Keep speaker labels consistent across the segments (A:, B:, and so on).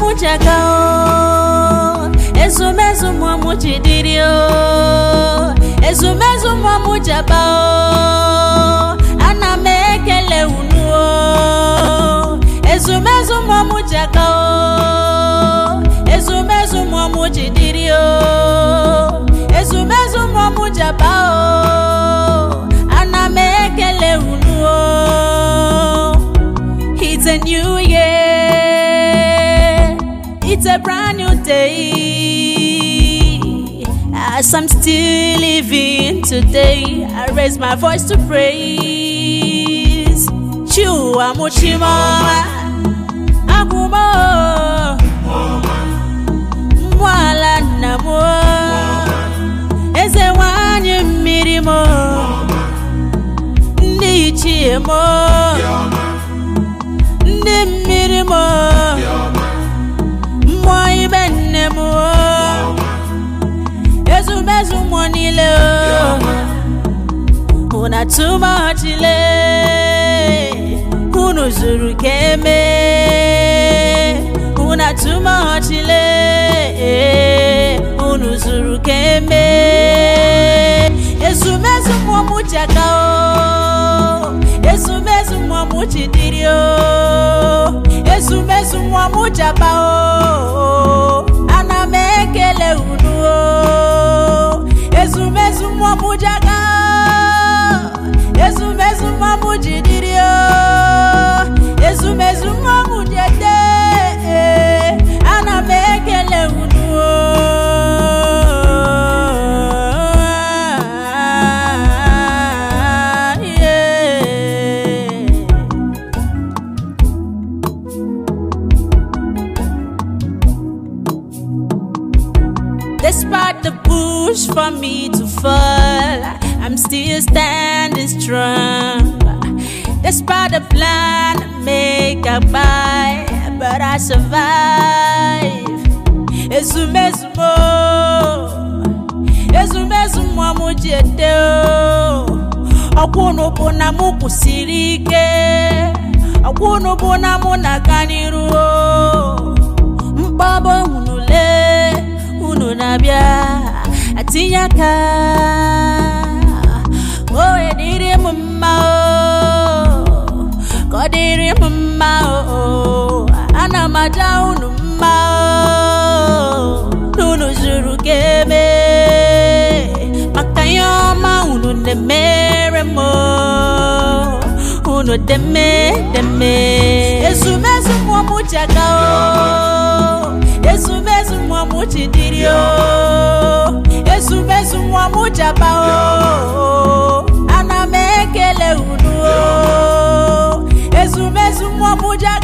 A: mụchaka ezumezu mmụọ jidiri ezumezu mmụọ m jaba ana m ekele unu ezumezu mmụọ m jaka ezumezu mmụọ m jidiri ezumezu mmụọ m jaba ana m ekele unu it's a new It's a brand new day. As I'm still living today, I raise my voice to praise. Chua Muchimoma, Agumo, Mwala Namo, Eze Wanyu Mirimo, Nichimo. niile una too much ile unu zuru ka eme una too much ile unu zuru ezumezu mụmụchi aka o o Eh, Despite the push for me to fall, I'm still standing strong. Despite the plan I made. get by, but I survive. Ezumezu mo, ezumezu mo mu jete o. na mụ kwụsịrị ike, ọkwụnụ na mụ na-aga n'iru o. na-abịa, atinye na unu mma na unu zuru ka eme maka ihe ọma unu na-emere m unu deme deme ezumezu mmụọ m ji aga o ezumezu mmụọ m ji dịrị o ezumezu mmụọ m ji aba o ana m ekele unu o ezumezu mmụọ m ji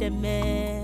A: edeme